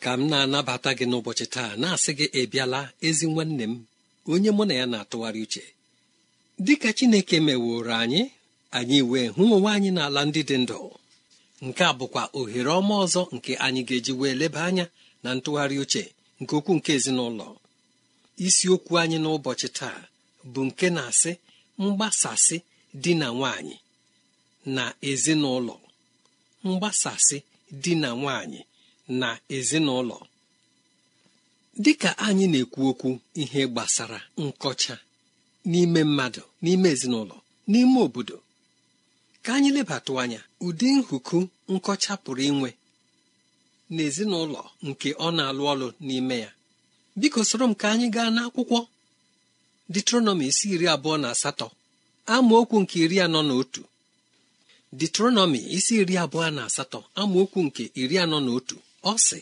ka m na-anabata gị n'ụbọchị taa na-asị gị ịbịala ezi nwanne m onye mụ na ya na-atụgharị uche dịka Chineke meworo anyị anyị wee hụ onwe anyị n'ala ndị dị ndụ nke a bụkwa ohere ọma ọzọ nke anyị ga-eji wee leba anya na ntụgharị uche nke okwu nke ezinụlọ isiokwu anyị n'ụbọchị taa bụ nke na-asị mgbasasị di na nwanyị na ezinụlọ mgbasasị di na nwanyị na ezinụlọ dịka anyị na-ekwu okwu ihe gbasara nkọcha n'ime mmadụ n'ime ezinụlọ n'ime obodo ka anyị lebatụ anya ụdị nhuku nkọcha pụrụ inwe n'ezinụlọ nke ọ na-alụ ọlụ n'ime ya biko soro m ka anyị gaa n'akwụkwọ detronọmi isi iri abụọ na asatọ amaokwu nke iri anọ na otu detronọmi isi iri abụọ na asatọ amaokwu nke iri anọ na otu ọ sị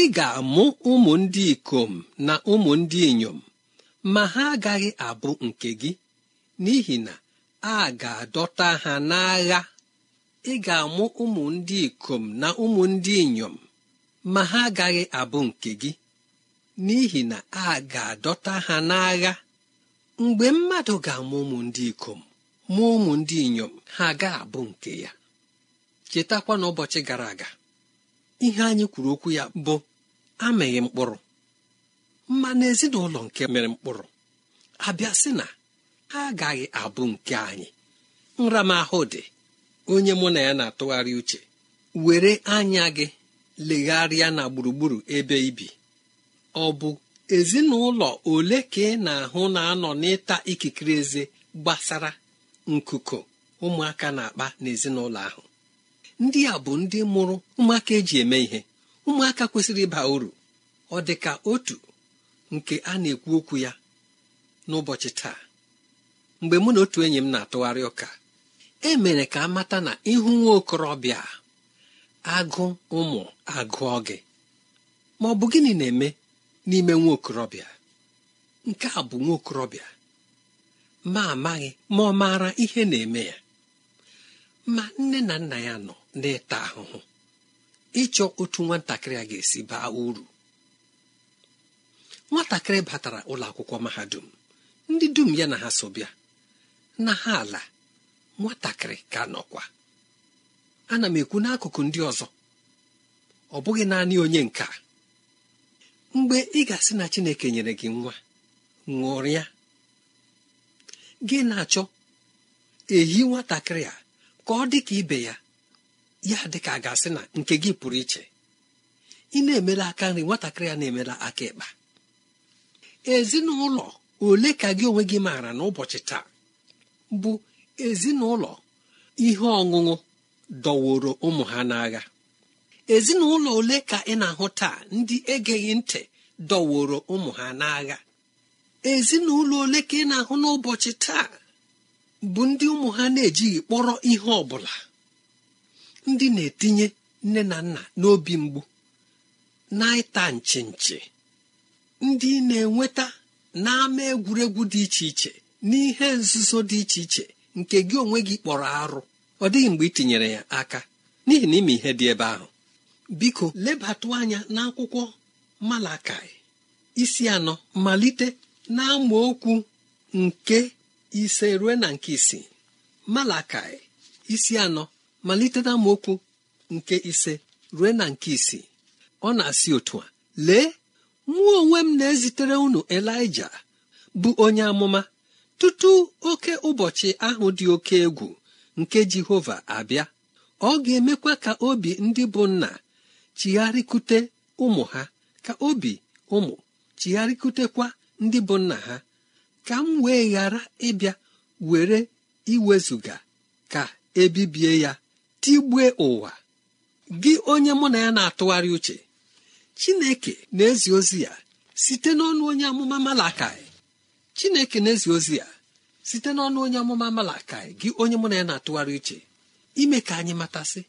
ị ga-amụ ụmụ ndị ikom na ụmụ ndị inyom ma ha agaghị abụ nke gị n'ihi na a ga-adọta ha n'agha ị ga-amụ ụmụ ndị ikom na ụmụ ndị inyom ma ha agaghị abụ nke gị n'ihi na a ga-adọta ha n'agha mgbe mmadụ ga-amụ ụmụ ndị ikom ma ụmụ ndị inyom ha ga-abụ nke ya chetakwa n'ụbọchị gara aga ihe anyị kwuru okwu ya bụ amịghị mkpụrụ ma ezinụlọ nke mere mkpụrụ abịa na ha agaghị abụ nke anyị nramahụ dị onye mụ na ya na-atụgharị uche were anya gị legharịa na gburugburu ebe ibi ọ bụ ezinụlọ ole ka ị na-ahụ na-anọ n'ịta ikikere eze gbasara nkuko ụmụaka na-akpa n'ezinụlọ ahụ ndị a bụ ndị mụrụ ụmụaka eji eme ihe ụmụaka kwesịrị ịba uru ọ dị ka otu nke a na-ekwu okwu ya n'ụbọchị taa mgbe mụ na otu enyi m na-atụgharị ụka e mere ka amata na ịhụ nwa okorobịa agụ ụmụ agụọ gị ma ọ bụ gịnị na-eme n'ime nwa nke a bụ nwa okorobịa ma amaghị ma ọ maara ihe na-eme ya ma nne na nna ya nọ na ịta ahụhụ ịchọ otu nwatakịrị a ga-esi baa uru nwatakịrị batara ụlọ akwụkwọ mahadum ndị dum ya na ha so bịa na ha ala nwatakịrị ka nọkwa ana m ekwu n'akụkụ ndị ọzọ ọ bụghị naanị onye nka mgbe ị ga-asị na Chineke nyere gị nwa ṅụrịa gị na-achọ ehi nwatakịrị a ka ọ dị ka ibe ya ya dịka a ga-asị na nke gị pụrụ iche ị na-emela aka nri nwatakịrị ya na-emela aka ịkpa ezinụlọ ole ka gị onwe gị maara n'ụbọchị taa bụ ezinụlọ ihe ọṅụṅụ dọworo ụmụ ha n'agha ezinụlọ ole ka ị na-ahụ taa ndị egeghị ntị dọworo ụmụ ha n'agha ezinụlọ ole ka ị na-ahụ n'ụbọchị taa bụ ndị ụmụ ha na-ejighị kpọrọ ihe ọ bụla ndị na-etinye nne na nna n'obi mgbu na-ịta nchi nchi ndị na-enweta n'ama egwuregwu dị iche iche n'ihe nzuzo dị iche iche nke gị onwe gị kpọrọ arụ ọ dịghị mgbe ị tinyere ya aka n'ihi na ime ihe dị ebe ahụ biko lebatụ anya n'akwụkwọ malakai isi anọ malite n'amaokwu nke ise rue na nke isii malakai isi anọ malite m okwu nke ise rue na nke isii ọ na-asị otu a lee nwa onwe m na-ezitere unu elija bụ onye amụma tutu oke ụbọchị ahụ dị oke egwu nke jehova abịa ọ ga-emekwa ka obi ndị bụ nna chigharịkute ụmụ ha ka obi ụmụ chigharịkutekwa ndị bụ nna ha ka m wee ghara ịbịa were iwezuga ka ebibie ya tigbue ụwa gị onye mụ na ya na-atụgharị uche chineke na-ezi ozi ya site n'ọnụ onye amụma malakai chineke na-ezi ozi ya site n'ọnụ onye amụma malakai gị onye mụ na ya na-atụgharị uche ime ka anyị matasị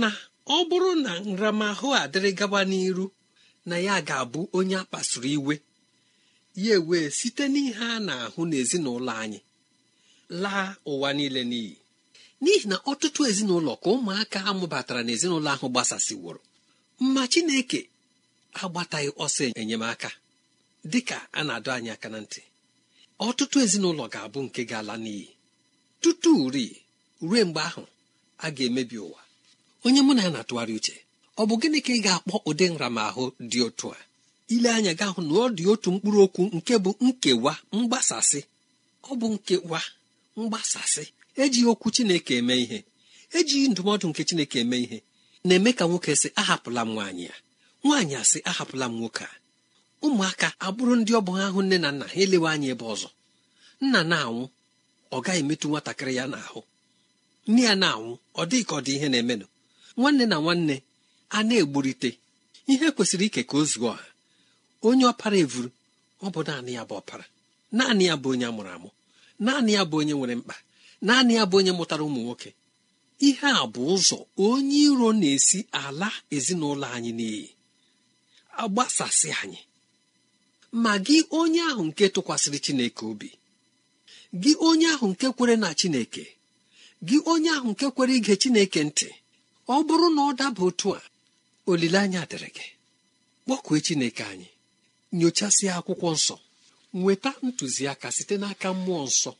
na ọ bụrụ na nramahụ adịrị gaba n'iru na ya ga-abụ onye a iwe ya ewee site n'ihe a na-ahụ n'ezinụlọ anyị laa ụwa niile n'iyi n'ihi na ọtụtụ ezinụlọ ka ụmụaka ha mụbatara n'ezinụlọ ahụ gbasasịworo mma chineke agbataghị ọsọ enyemaka dịka a na-adọ anyị aka na ntị ọtụtụ ezinụlọ ga-abụ nke ga-ala n'iyi tutu ri ruo mgbe ahụ a ga-emebi ụwa onye mụ na ya na-atụgharị uche ọ bụ gịnị ka ị ga-akpọ ụdị nramahụ dị otu a ile anya ga-ahụ na ọ dị otu mkpụrụ okwu nke bụ nkewa mgbasasị ọ bụ nkewa mgbasasị ejighị okwu chineke eme ihe ejighị ndụmọdụ nke chineke eme ihe na-eme ka nwoke sị ahapụla m nwaanyị a nwaanyị a sị ahapụla m nwoke a ụmụaka abụrụ ndị ọ ahụ nne na nna ha elewe anya ebe ọzọ nna na-anwụ ọ gaghị emetụ nwatakịrị ya n'ahụ nne ya na-anwụ ọ dịghị ka ọ dị ihe na-emenụ nwanne na nwanne a na-egburite ihe kwesịrị ike ka o zuo ọha onye ọpara evuru ọ bụ naanị ya bụ ọpara naanị ya bụ onye a mụrụ amụ naanị ya bụ onye nwere mkpa naanị ya bụ onye mụtara ụmụ nwoke ihe a bụ ụzọ onye iro na-esi ala ezinụlọ anyị n'iyi agbasasị anyị ma gị onye ahụ nke tụkwasịrị chineke obi gị onye ahụ nke kwere na chineke gị onye ahụ nke kwere ige chineke ntị ọ bụrụ na ọ daba otu a olileanya dịrị gị kpọkue chineke anyị nyochasịa akwụkwọ nsọ nweta ntụziaka site n'aka mmụọ nsọ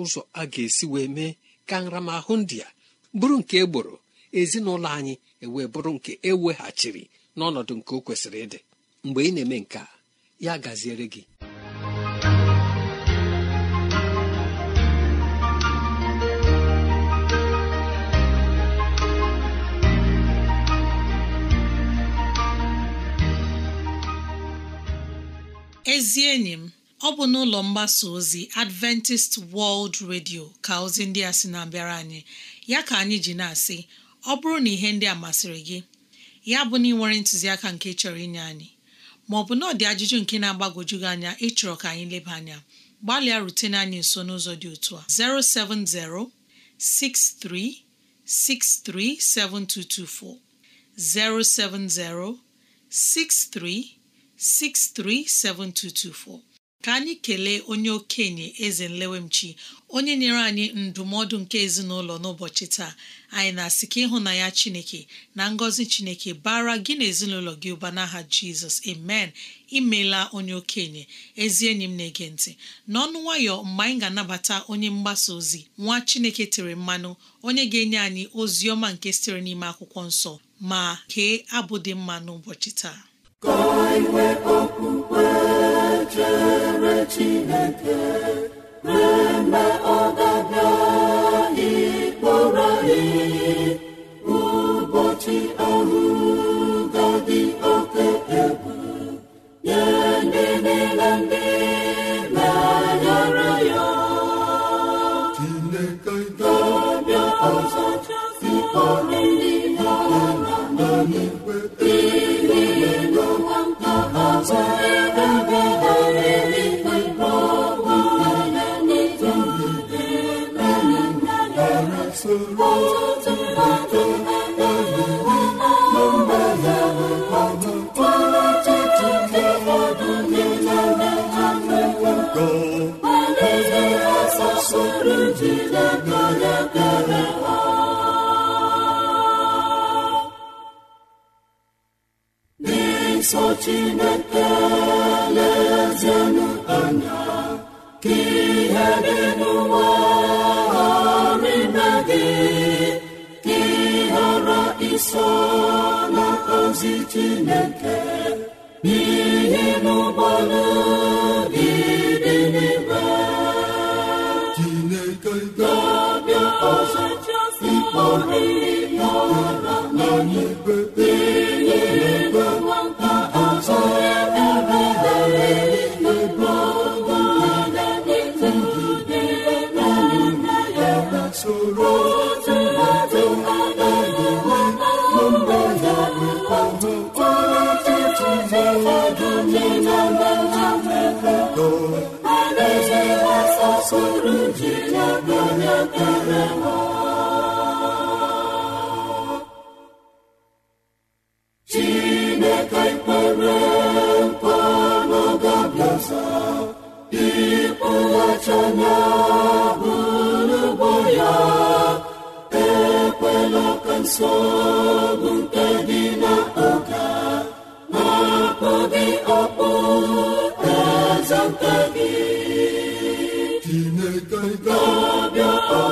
ụzọ a ga-esi wee mee ka nramahụ ndị a bụrụ nke egboro ezinụlọ anyị ewee bụrụ nke eweghachiri n'ọnọdụ nke o kwesịrị ịdị mgbe ị na-eme nke a ya gaziere gị ezi enyi m ọ bụ n'ụlọ mgbasa ozi Adventist World Radio ka ozi ndị a sị na-abịara anyị ya ka anyị ji na-asị ọ bụrụ na ihe ndị a masịrị gị ya bụ na ị nwere ntụziaka nke chọrọ inye anyị ma ọ bụ na ọ dị ajụjụ nke na-agbagwoju gị anya ịchọrọ ka anyị leba anya gbalịa rutene anyị nso n'ụzọ dị otu a 07063637224 07063637224 ka anyị kelee onye okenye eze nlewemchi onye nyere anyị ndụmọdụ nke ezinụlọ n'ụbọchị taa anyị na-asị ka na ya chineke na ngọzi chineke bara gị na ezinụlọ gị ụba n'aha jizọs amen imela onye okenye ezi enyi m na-ege ntị n'ọnụ nwayọ mgbe anyị ga-anabata onye mgbasa ozi nwa chineke tere mmanụ onye ga-enye anyị ozi ọma nke sitere n'ime akwụkwọ nsọ ma kee abụ dị mma n'ụbọchị taa nsọ chineke lezienụ anya ka dị n'ụwa ghara ime gị ka ị ghara iso n'ozi chineke n'ihi n'ụgbọala gị dị n'ime chineke ga-abịa ọzọ ịkpọrọ ihe ọra na n'igwe sọrọ ji onye mere chineke kpere mkpa n'ọgabiaza ịkpụghachana bụrụgbo ya ekwela nsọ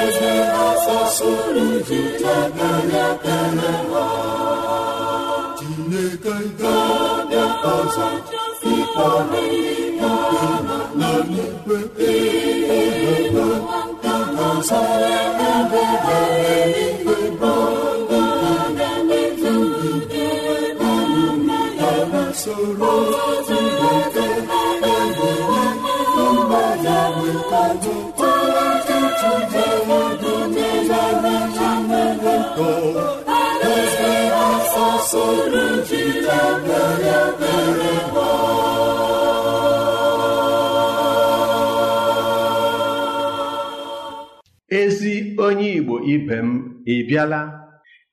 eze eze sụrụ ji chebere ekpere ha Chineke ga na ezi onye igbo ibe m ị bịala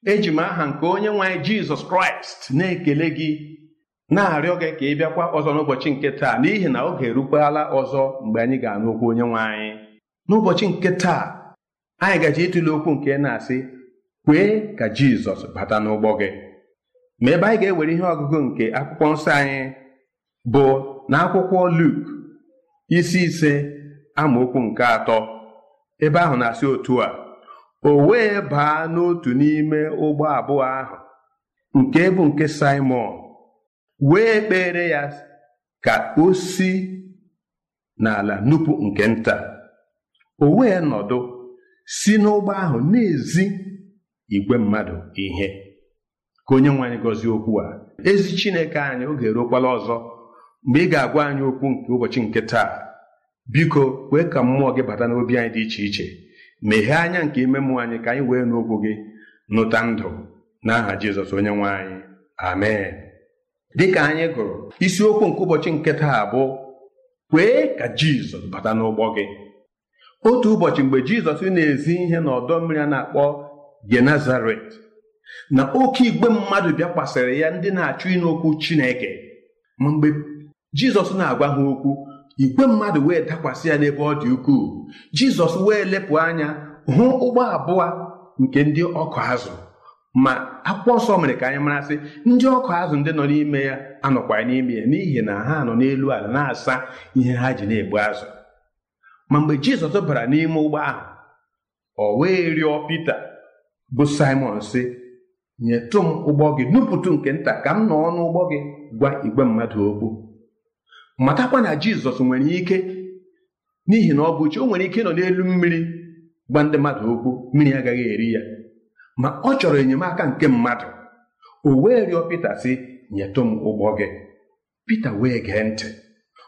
eji m aha nke onye nwanyị jizọs kraịst na-ekele gị na-arịọ gị ka ị bịakwa ọzọ n'ụbọchị nke taa n'ihi na oge erukwala ọzọ mgbe anyị ga-anụ okwu onye nwe n'ụbọchị nke taa anyị gaji ịtụle okwu nke na-asị kwee ka jizọs bata n'ụgbọ gị ma ebe anyị ga-ewere ihe ọgụgụ nke akwụkwọ nsọ anyị bụ na akwụkwọ Luk isi ise amaokwu nke atọ ebe ahụ na-asị otu a o wee baa n'otu n'ime ụgbọ abụọ ahụ nke bụ nke simon wee kpere ya ka o si n'ala nupụ nke nta o wee nọdụ si n'ụgbọ ahụ na-ezi igwe mmadụ ihe ka onye nwe anyị gọzie okwu a ezi chineke anyị oge eruokwala ọzọ mgbe ị ga-agwa anyị okwu nke ụbọchị nke taa biko kwee ka mmụọ gị bata n'obi anyị dị iche iche meghee anya nke ime mmụọ anyị ka anyị wee n'okwu gị nụta ndụ n'aha jizọs onye nwe anyị amen dịka anyị gụrụ isiokwu nke ụbọchị nke taa bụ kwee ka jizọs bata n'ụgbọ gị otu ụbọchị mgbe jizọs na-ezi ihe n'ọdọ mmiri a na-akpọ genazaret na oke igwe mmadụ bịakwasịrị ya ndị na-achụ ịnụ okwu Chineke ma mgbe Jizọs na-agwa ha okwu igwe mmadụ wee dakwasị ya n'ebe ọ dị ukwuu Jizọs wee lepụ anya hụ ụgbọ abụọ nke ndị ọkụ azụ ma akwụkwọ nsọ mere ka anyị marasị ndị ọkụ azụ ndị nọ n'ime ya anọkwa n'ime ya n'ihi na ha nọ n'elu ala na-asa ihe ha ji na-egbu azụ ma mgbe Jizọs bara n'ime ụgbọ ahụ o wee rịọ Pita bụ Simon sị nyetụ m ụgbọ gị nupụtụ nke nta ka m nọ n'ụgbọ gị gwa igwe mmadụ okwu matakwa na jizọs nwere ike n'ihi na ọ bụ o nwere ike nọ n'elu mmiri gwa ndị mmadụ okwu mmiri agaghị eri ya ma ọ chọrọ enyemaka nke mmadụ o wee rịọ pita sị nyetụ m ụgbọ gị pita wee gee ntị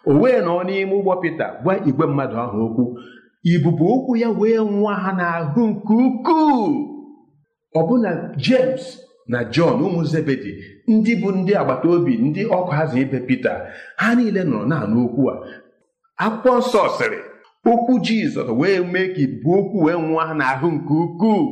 o wee nọ n'ime ụgbọ pita gwa igwe mmadụ ahụ okwu ibubo okwu ya wee nwa ha n'ahụ nke ukwuu ọbụna james na jọn ụmụ zebedi ndị bụ ndị agbata obi ndị ọkụ hazụ ibe pita ha niile nọrọ na-anụ okwu a akwụkwọ nsọ sịrị okwu jizọs wee mee ka ibu okwu wee ha n'ahụ nke ukwuu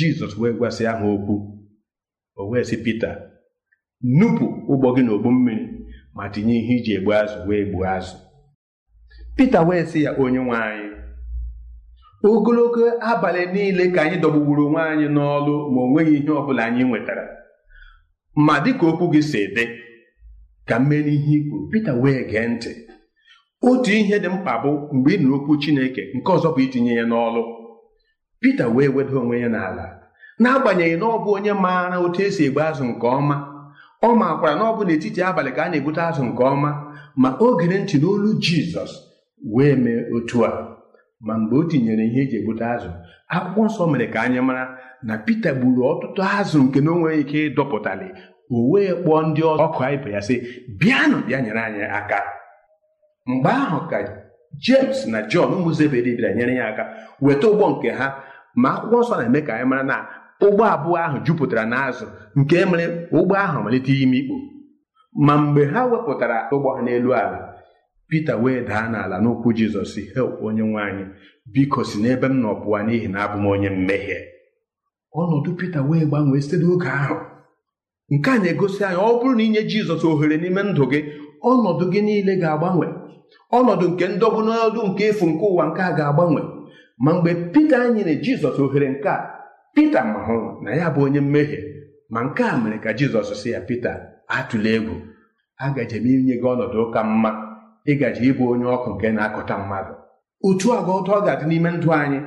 jizọs wee gwasị aha okwu o wee sị pita nupụ ụgbọ gị n'ogbu mmiri ma tinye ihe iji egbu azụ wee gbuo azụ pita wee sị ya onye nwe anyị ogologo abalị niile ka anyị dọgbugburu onwe anyị n'ọlụ ma o nweghị ihe ọ bụla anyị nwetara ma dịka okwu gị si dị ka m n'ihe i kwuru pita wee gee ntị otu ihe dị mkpa bụ mgbe ị nụrụ okwu chineke nke ọzọ bụ itinye ya n'ọlụ Pita wee weda onwe ya n'ala n'agbanyeghị na ọ bụ onye maara otu esi egbe azụ nke ọma ọ makwara na ọ bụ n'etiti abalị ka a na-egbute azụ nke ọma ma o gere ntị n'olu Jizọs wee mee otu a ma mgbe o tinyere ihe eji egbute azụ akwụkwọ nsọ mere ka anyị mara na Pita gburu ọtụtụ azụ nke na o ike ịdọpụtali o wee kpọọ ndị ọzọ ọkụ ibe ya sị bịanụ bịa nyere anyị aka mgbe ahụ ka james na jọn ụmụ zebedi bịara nyere ya aka weta ụgbọ nke ha ma akwụkwọ nsọ na-eme ka anyị mara na ụgbọ abụọ ahụ jupụtara na azụ nke mere ụgbọ ahụ malite ime ikpo ma mgbe ha wepụtara ụgbọ ha n'elu ala pita wee daa n'ala n'ụkwụ jizọs help onye nwe anyị biko si n'ebe m nọ n'ihi na abụ m onye mmehie ọnọdụ pita wee gbanwee site n'oge ahụ nke a na-egosi anyị ọ bụrụ na inye jizọs ohere n'ime ndụ gị ọnọdụ gị niile ga-agbanwe ọnọdụ nke ndọgbu n'ọdụ nke efu nke ụwa nke a ga-agbanwe ma mgbe Pita nyere Jizọs ohere nke a Pita ma hụrụ na ya bụ onye mmehie ma nke a mere ka Jizọs si ya Pita atụla egwu agaje m inye gị ọnọdụ ụka mma ịgaji ịbụ onye ọkụ nke na-akụta mmadụ otu agwa ọtọ ọ ga-adị n'ime ndụ anyị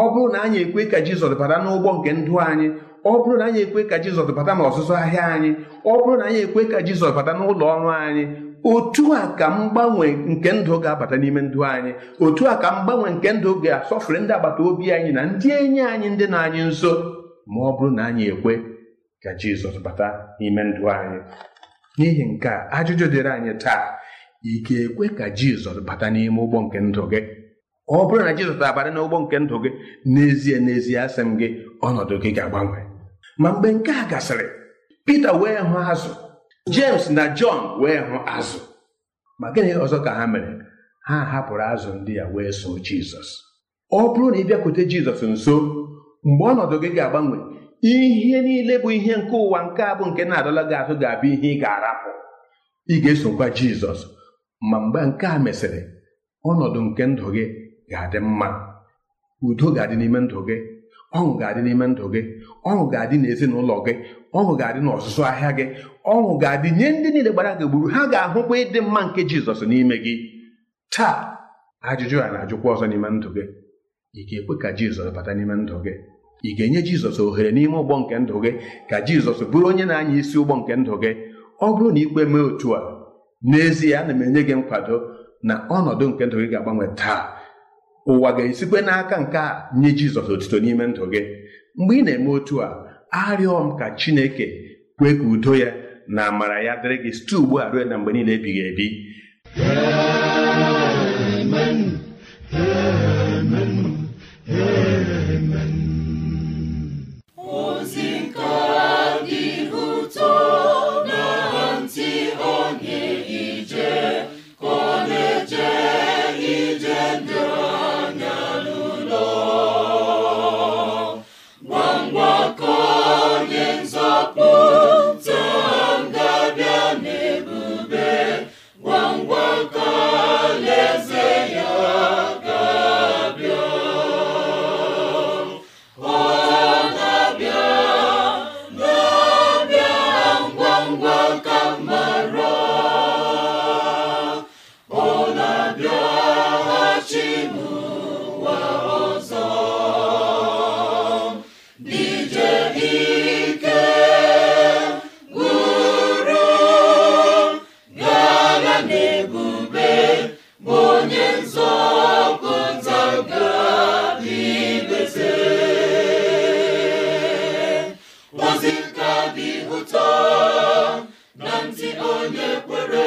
ọ bụrụ na anyị ekwe ka Jizọs bara n'ụgbọ nke ndụ anyị ọ bụrụ na anyị ekwe ka jizọs bata na ọzụzụ ahịa anyị ọ bụrụ na anyị ekwe ka jizọs bata n'ụlọ ọrụ anyị otu a ka mgbanwe nke ndụ ga-abata n'ime ndụ anyị otu a ka mgbanwe nke ndụ ga-asọfere ndị agbata obi anyị na ndị enyi anyị ndị na anyị nso ma ọ bụrụ na anyị ekwe ka jizọs bata n'ime ndụ anyị n'ihi nke a ajụjụ dịrị anyị taa ị ga-ekwe ka jizọs bata n'ime ụgbọ nke ndụ gị ọ bụrụ na jizọs abata n'ụgbọ nke ndụ gị n'ezie n'ezie asị m gị ọnọdụ gị ga-agbanwe ma mgbe nke a gasịrị Pita wee hụ azụ James na Jọn wee hụ azụ ma gịnị ọzọ ka ha mere ha hapụrụ azụ ndị ya wee so Jizọs ọ bụrụ na ị bịakwute Jizọs nso mgbe ọnọdụ gị ga-agbanwe ihe niile bụ ihe nke ụwa nke a bụ nke na-adọla gị azụ ga-abụ ihe ị ga-arapụ ị ga-esokwa Jizọs ma mgbe nke a mesịrị ọnọdụ nke ndụ gị ga-adị mma udo ga-adị n'ime ndụ gị ọṅụ ga-adị n'ime ndụ gị ọṅụ ga-adị n'ezinụlọ gị ọṅụ ga-adị n'ọzụzụ ahịa gị ọṅụ ga-adị nye ndị niile gbara gị gburu ha ga-ahụkwa ịdị mma nke jizọs n'ime gị taa ajụjụ a na-ajụkwa ọzọ n'ime ndụ gị ị ga-ekwe ka jizọs bata n'ime ndụ gị ị ga-enye jizọs ohere n'ime ụgbọ nke ndụ gị ka jizọs bụrụ onye na-anya isi ụgbọ nke ndụ gị ọ bụrụ na ikpe mee otu a n'ezie ana m enye gị nkwado na ọnọdụ nke ndụ gị ga-agbanwe taa ụwa ga-esikwe n'aka nke a nye jizọs otito n'ime ndụ gị mgbe ị na-eme otu a arịọ m ka chineke kwee ka udo ya na amara ya dịrị gị site ugbu a ruo na mgbe niile ebighị ebi Amen. Amen. Amen. onye kwere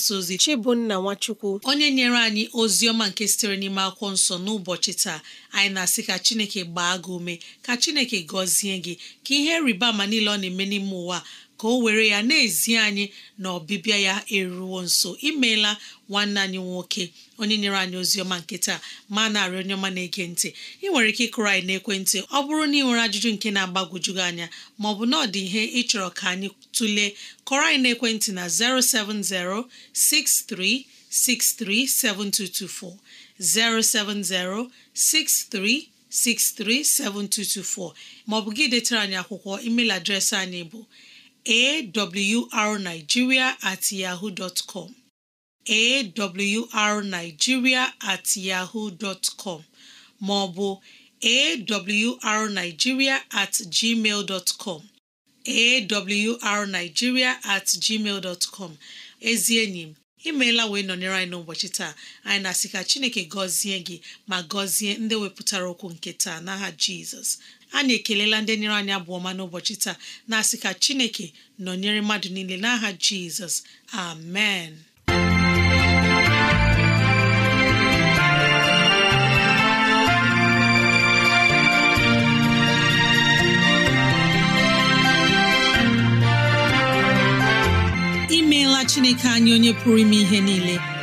mgbasa ozi Chibunna Nwachukwu onye nyere anyị ozi ọma nke sitere n'ime akwụkwọ nsọ n'ụbọchị taa anyị na-asị ka Chineke gbaa gị ume ka Chineke gọzie gị ka ihe rịba ama niile ọ na-eme n'ime ụwa ka o were ya na-ezi anyị na ọbịbịa ya eruwo nso imeela nwanne anyị nwoke onye nyere anyị ozi ọma nke taa ma narị onye ọma na-ege ntị ị nwere ike ịkụrụ anyị n'ekwentị ọ bụrụ na ị nwere ajụjụ nke na-agbagwoju gị anya ma ọ bụ na ọ dị ihe ịchọrọ ka anyị tụlee kọrọ anyị n'ekwentị na 07063637224 07063 637224 maọbụ gị detara anyị akwụkwọ email adreesị anyị bụ awrnigeria at yahoo dot com awrnigeria at yahoo dot maọbụ awrnigeria at gmail dot com at gmail dot com ezi enyi m imeela wee nọnyere anyị n'ụbọchị taa anyị na-asị ka Chineke gọzie gị ma gọzie ndị wepụtara okwu nke taa n'aha Jizọs A na ekelela ndị nyere anyị abụ ọma n'ụbọchị taa na-asị ka chineke nọnyere mmadụ niile n'aha jizọs amen imeela chineke anyị onye pụrụ ime ihe niile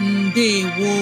ndewo